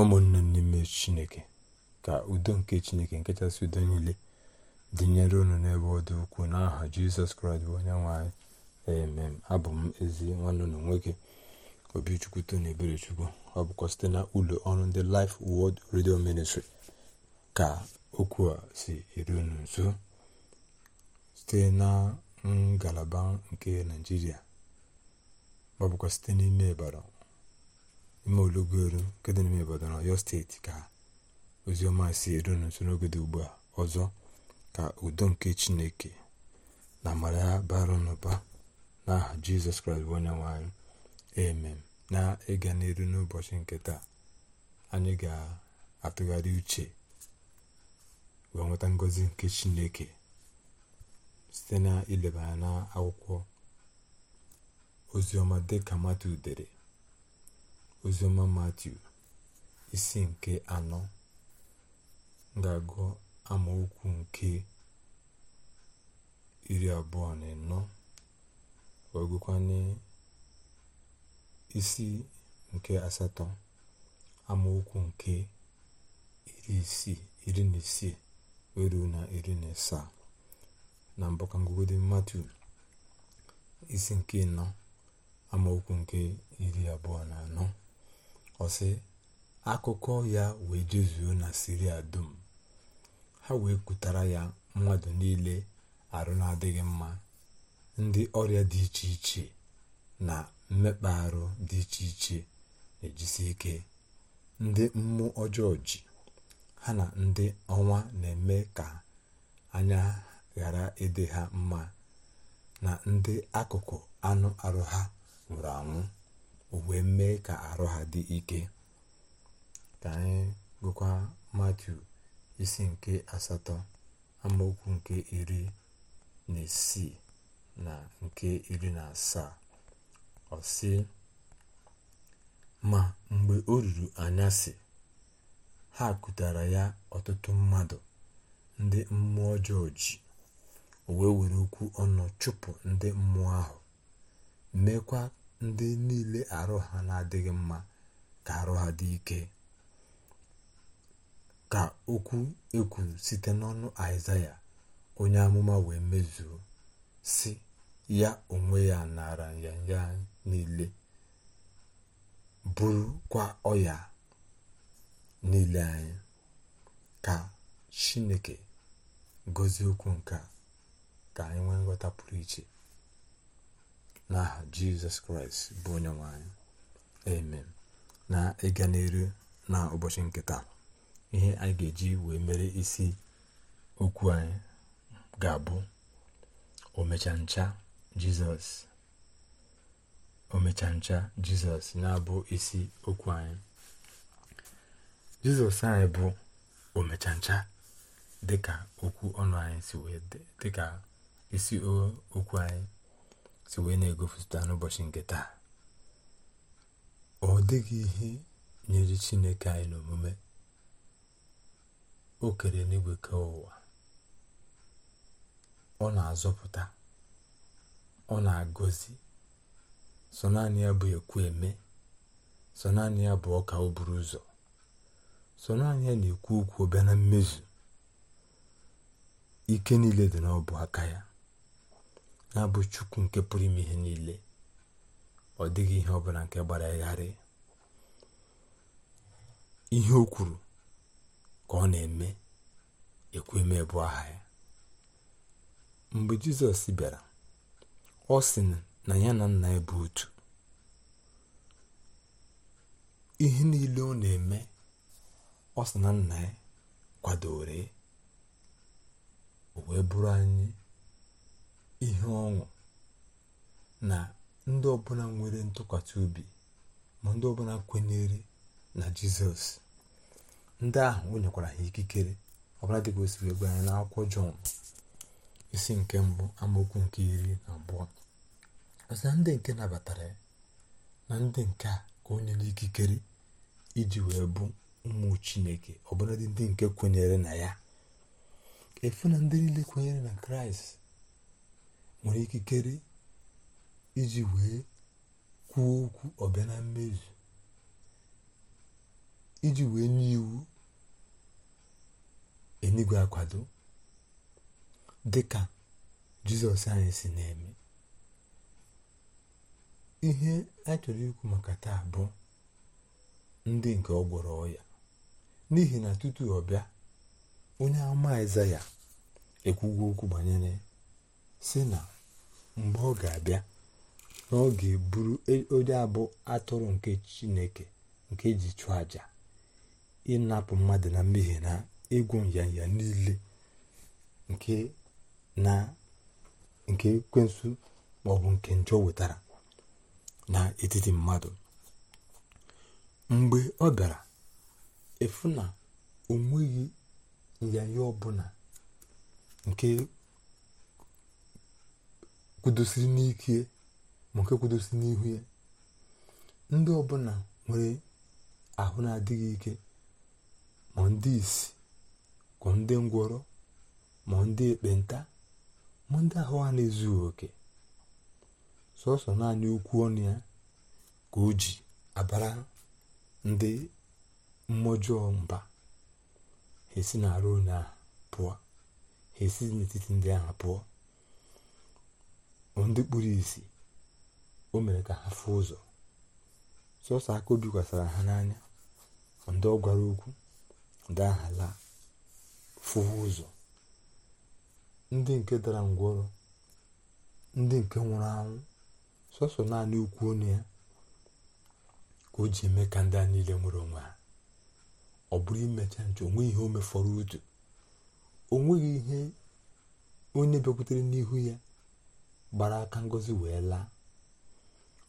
ụmụnne m n'ime chineke ka udo nke chineke nke udo niile dịnyere unu n'ebe ọ dị ukwuu n'aha jizọs kraịst bụ onye nwe emem abụ m ezi nwanne ụlọ nwoke obichukwu tona eberechukwu ọ bụkwa site na ụlọ ọrụ ndị Life Word redio Ministry ka okwu a si eru unu nso site na ngalaba nke naijiria ọ bụkwa site n'ime ịbara ime olugoro nke dị n'ime na ọyọ steeti ka oziọma si eru n'nso n'oge dị ugbu a ọzọ ka udo nke chineke na amara ya bara n'ụba n'aha jizọs kraịst bụ onye nwanyị emem na ịga n'elu n'ụbọchị nke taa anyị ga-atụgharị uche wee nweta ngọzi nke chineke site na ileba ya na akwụkwọ oziọma dịka mata udere oziọma matiu isi nke anọ ga-agụ amaokwu nke iri abụọ na anọ wee isi nke asatọ amaokwu nke iri isii iri na isii wee na iri na asaa na mbụ ka isi nke nọ amaokwu nke iri abụọ na anọ ọsị akụkọ ya wee jezuo na siria dum ha wee kutara ya mmadụ niile arụ na-adịghị mma ndị ọrịa dị iche iche na mmekpa arụ dị iche iche na-ejisi ike ndị mmụọ ọjọọ ji ha na ndị ọnwa na-eme ka anya ghara ịdị ha mma na ndị akụkụ anụ arụ ha nwụrụ anwụ o wee mee ka arụ ha dị ike ka anyị gụkwa matiu isi nke asatọ amaokwu nke iri na isii na nke iri na asaa ọ ma mgbe o ruru anyasị ha kụtara ya ọtụtụ mmadụ ndị mmụọ ọjọọ ji o wee were okwu ọnụ chụpụ ndị mmụọ ahụ meekwa ndị niile arụ ha na-adịghị mma ka arụ ha dị ike ka okwu ekwu site n'ọnụ aịzaya onye amụma wee mezuo si ya onwe ya nara nyanya niile bụrụkwa ọya niile anyị ka chineke gozie okwu nke ka anyị nwee nghọta pụrụ iche n'aha jizọs kraịst bụ onye nwanyị amen na ịga n'eru na ụbọchị nke taa ihe anyị ga-eji wee mere isi okwu anyị ga-abụ omecha ncha jizọs omecha ncha jizọs na-abụ isi okwu anyị jizọs anyị bụ omecha ncha dịka okwu ọnụ anyị si wee dịka isi okwu anyị si wee na-egopụta n'ụbọchị nke taa ọ dịghị ihe nyere chineke anyị n'omume o kere n'igwe ka ụwa ọ na-azọpụta ọ na-agọzi sọ naanị ya bụ ekwu eme sọ naanị ya bụ ọka o buru ụzọ sọ naanị ya na-ekwu okwu bịa na mmezu ike niile dị n'ọbụ aka ya na bụ chukwu nke pụrụ ime ihe niile ọ dịghị ihe ọbụla nke gbara gharị ihe o kwuru ka ọ na-eme ekweme bụ aha ya mgbe jizọs bịara ọ sị na ya na nna ya bụ otu ihe niile ọ na-eme ọ sị na nna ya kwadoro o wee bụrụ anyị ihe ọṅụ na ndị ọbụla nwere ntụkwasị obi ma ndị ọbụla kwenyere na jizọs ndị ahụ o nyekwara ha ikikere ọbụla dịka o siri gwa anyị n'akwụkwọ jọn isi nke mbụ amaokwu nke iri na abụọ ọsị na ndị nke nabatara ya na ndị nke a ka onye nikikere ikikere iji wee bụ ụmụ chineke ọbụladị ndị nke kwenyere na ya efu na ndị niile kwenyere na kraịst nwere ikikere iji wee kwuo okwu ọbịa na mmezu iji wee nye iwu enigwe akwado dịka jizọs anyị si na-eme ihe a chọrọ ikwu maka taa bụ ndị nke ọ gwọrọ ọya n'ihi na tutu ọ bịa onye ama ya ekwugo okwu banyere si na mgbe ọ ga-abịa na ọ ga-eburu e, onye abụọ atụrụ nke chineke nke ji chụọ aja ịnapụ mmadụ na mmehie na ịgwọ nyanya niile nke na nke ekwensu maọbụ nke njọ wetara n'etiti mmadụ mgbe ọ bịara efu na o nweghị nyanya ọbụla nke kwudosiri n'ike ma nke kwudosiri n'ihu ya ndị ọbụla nwere ahụ na-adịghị ike ma ndị isi kwa ndị ngwọrọ ma ndị ekpenta ma ndị ahụ a na-ezughị oke sọsọ naanị ukwu ọnụ ya ka o ji abara ndị mmụọjọọ mba ha esi na-arụ onye ahụ pụọ ha esi n'etiti ndị ahụ pụọ ndị kpuru isi o mere ka ha fụọ ụzọ sọsọ aka o bikwasara ha n'anya ndị ọ gwara okwu ndị aha laa fụ ụzọ ndị nke dara ngwọrọ ndị nke nwụrụ anwụ sọsọ naanị ukwu ọnụ ya ka o ji eme ka ndị a niile nwere onwe ha ọ bụrụ imecha nche onwe ihe o mefọrọ otu o nweghị ihe onye bịakwutere n'ihu ya gbara aka ngozi wee laa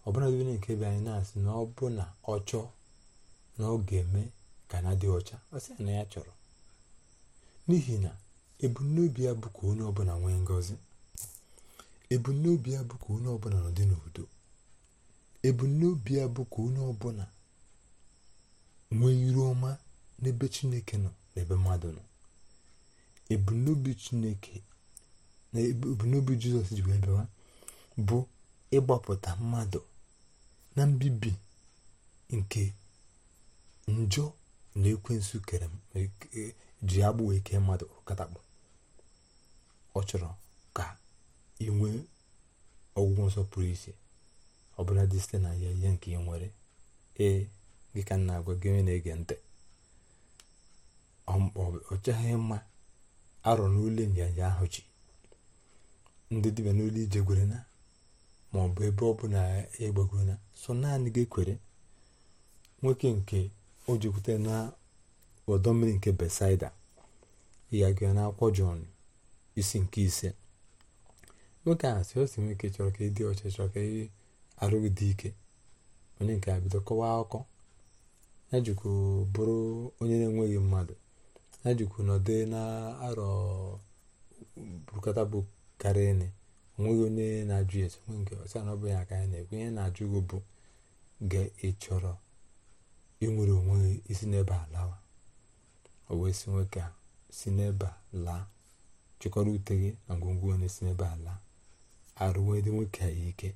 ọbụla dịbe nke be anyị na-asị na ọ bụ na ọ chọọ na ọ ga-eme ka na dị ọcha ọ sị na ya chọrọ n'ihi na ebumnobi ya bụ ka onye ọbụla nwee ngozi ebumnobi ya bụ ka onye ọbụla n'udo ebumnobi ya bụ ka onye ọbụla nwee iru ọma n'ebe chineke nọ n'ebe mmadụ nọ ebumnobi chineke na ebumnobi jizọs ji wee bịawa bụ ịgbapụta mmadụ na mbibi nke njọ na ekwensu kere e-, e, ji agbụ wee kee mmadụ katakpọ ọ chọrọ ka inwe ọgwụgwọ nsọ pụrụ iche ọbụla dị site na ya ihe nke ị nwere ee gị ka na-agwa gị onye na-ege ntị ọ chaghị mma arọ n'ule nyanya ahụ ji ndị dibịa n'olu ije gwerena ma ọ bụ ebe ọ bụla ya na so naanị gị kwere nwoke nke o jikwute na ọdọ mmiri nke besaida ya gị na akwụkwọ jọn isi nke ise nwoke a si osi nwoke chọrọ ka ịdị ọcha chọrọ ka ị arụghị dị ike onye nke a bido kọwaa akụkọ ya jikwu bụrụ onye na-enweghị mmadụ ya jikwu nọdụ na arọ bukata bụ karịa nne onweghị onye na-ajụ ese nwe nke ọsa na ọ bụghị aka ya na-ekwe ihe na-ajụ gị bụ ga ị chọrọ inwere onwe isi n'ebe a lawa o wee si nwoke si n'ebe a laa chịkọrọ ute gị na ngwongwo onye si n'ebe a laa arụwedị nwoke a ike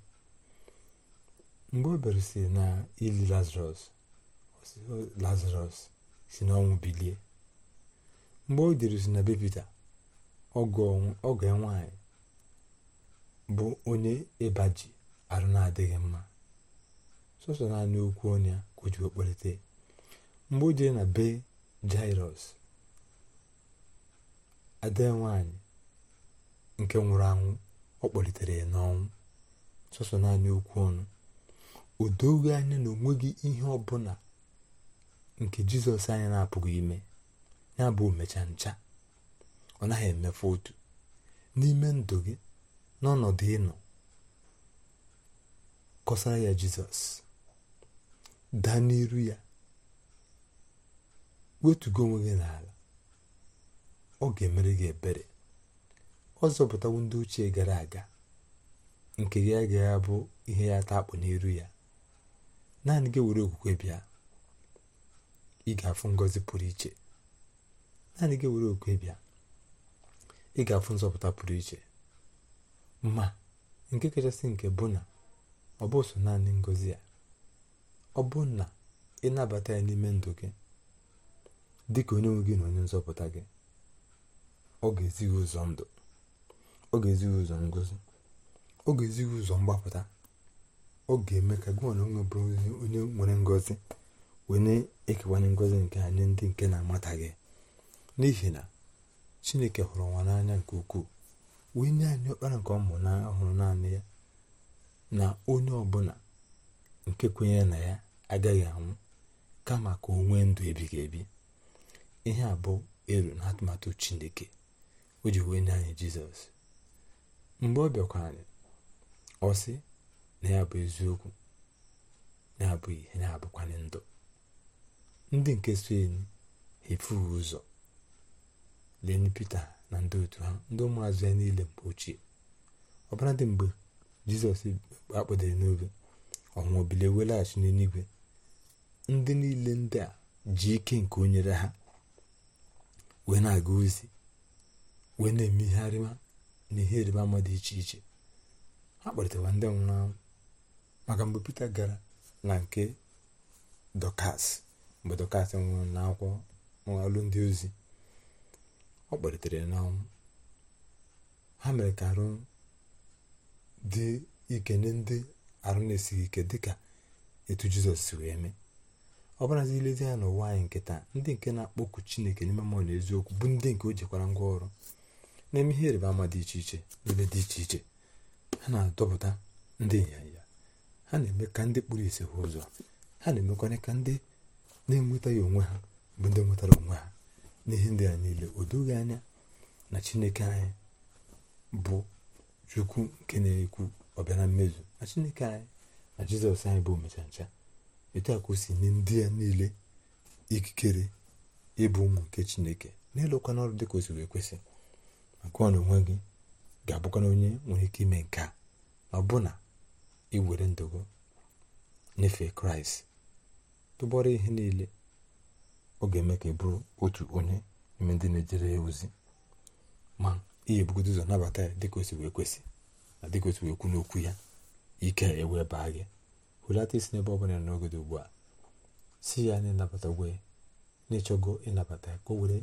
mgbe o bere na ili lazarus lazarus si n'ọnwụ bilie mgbe o jiri si na bepita ọgọ ya nwaanyị bụ onye ịba ji arụ na-adịghị mma sọsọ naanị okwu ọnụ ya ka o ji okpelite mgbe o na be jairọs ade nwanyị nke nwụrụ anwụ ọ kpọlitere ya n'ọnwụ sọsọ naanị okwu ọnụ o doghị anya na onweghị ihe ọbụla nke jizọs anya na-apụghị ime ya bụ omecha ncha ọ naghị emefu otu n'ime ndụ gị n'ọnọdụ ịnọ kọsara ya jizọs daa n'iru ya wetugo onwe gị n'ala ọ ga-emere gị ebere ọ zọpụtawo ndị ochie gara aga nke gị agaghị abụ ihe ya taa akpụ n'iru ya naanị gị were okwukwe bịa ị ga-afụ ngọzi pụrụ iche naanị gị were okwukwe bịa ị ga-afụ nzọpụta pụrụ iche ma nke kachasị nke bụ na ọ bụ so naanị ngozi ya ọ bụ na ịnabata ya n'ime ndụ gị dịka onye nwe gị na onye nzọpụta gị ọ ga-ezi gị ụzọ ndụ ọ ga-ezi gị ụzọ ngozi ọ ga-ezi gị ụzọ mgbapụta ọ ga-eme ka gị na onwe bụrụ onye nwere ngozi wee na-ekewanye ngozi nke anyị ndị nke na amata gị n'ihi na chineke hụrụ nwa n'anya nke ukwuu wee nye anyị ọkpara nke ọmụ ọhụrụ naanị ya na onye ọbụla nke kwenyere na ya agaghị anwụ kama ka onwe ndụ ebighị ebi ihe a elu na atụmatụ chineke o ji wee nye anyị jizọs mgbe ọ bịakwara anyị ọ na ya bụ eziokwu na-abụ ihe na-abụkwanye ndụ ndị nke so enyi efughị ụzọ na ndị otu ha ndị ụmụazụ ya niile mgbe ochie Ọbara dị mgbe jizọs akpọdere n'obe ọnwụọ bilie welaghachi n'eluigwe ndị niile ndị a ji ike nke o nyere ha wee na-aga ozi wee na-eme ihe arịma na ihe ịrịba ama dị iche iche ha kpọrịtawa ndị nwụrụ anwụ maka mgbe Pita gara na nke dokas mgbe Dọkas nwụrụ akwụkwọ alụ ndị ozi ọ kpalitere n'ọnwụ ha mere ka arụ dị ike nye ndị arụ na-esighị ike dịka etu jizọs si wee mee ọ bụrazi ilezi ya n'ụwa anyị nke taa ndị nke na-akpọku chineke n'ime mmụọ na eziokwu bụ ndị nke o jikwara ngwa ọrụ na ihe ịrịba ama dị iche iche n'ebe dị iche iche ha na-adọpụta ndị ịnyịnya ha na-eme ka ndị kpụrụ ise ụzọ ha na-emekwanye ka ndị na-enwetaghị onwe ha bụ ndị nwetara onwe ha n'ihe ndị a niile o doghị anya na chineke anyị bụ chukwu nke na-ekwu ọbịana mmezu na chineke anyị na jizọs anyị bụ omecha ncha etu a si nye ndị ya niile ikikere ịbụ ụmụ nke chineke na-elụkwa n'ọrụ dị ka o siri ekwesị maka ọ na onwe gị ga-abụkwana onye nwere ike ime nke a ọbụna iwere ndụgo nyefee kraịst tụbọrọ ihe niile ọ ga-eme ka ị bụrụ otu onye n'ime ndị na-ejere ya ozi ma ihe ga-ebugodo ụzọ nabata ya dịka o wee kwesị na dịka osi wee kwu n'okwu ya ike ewee baa gị hụlata isi n'ebe ọ bụla n'oge dị ugbu a si ya na ịnabata gwe na-ịchọgo ịnabata ya ka o were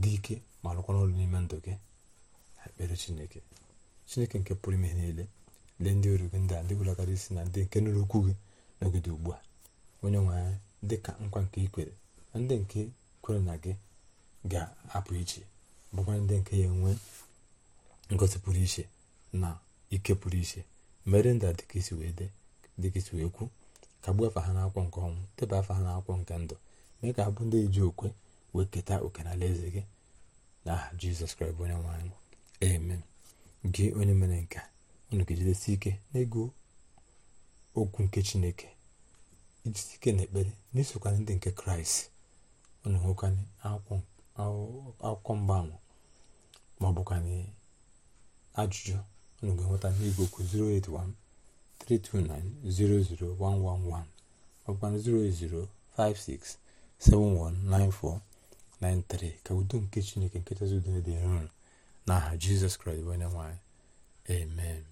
dị ike ma rụkwa ọrụ n'ime ndụ gị na ekpere chineke chineke nke pụrụ ime niile lee ndị oru gị ndị a ndị ụlọgara isi na ndị nke nụrụ okwu gị n'oge dị ugbu a onye nwe anyị dịka nkwa nke ị ndị nke kwere na gị ga-apụ iche bụkwa ndị nke ya enwe ngosipụrụ iche na ike pụrụ iche mere ndị a dịka isi wee dị dịka isi wee kwu ka gbuo afa ha n'akwụkwọ nke ọnwụ teba afa ha n'akwụkwọ nke ndụ mee ka ha bụ ndị ji okwe wee keta oke na eze gị aha jizọs kraịst onye nwe anyị amen gị onye mere nka unu ga-ejidesi ike n'ego okwu nke chineke ijisi ike na ekpere na ndị nke kraịst unu hụkwanye akwụkwọ mgbanwe ma ọ bụkwanye ajụjụ ụnụ ga-enweta n'igwe okwu 08132900111 ma ọbụkwana 08056719493 ka udo nke chineke nke chezidone dị nro n'aha jizọs kraịst onye nwanyị amen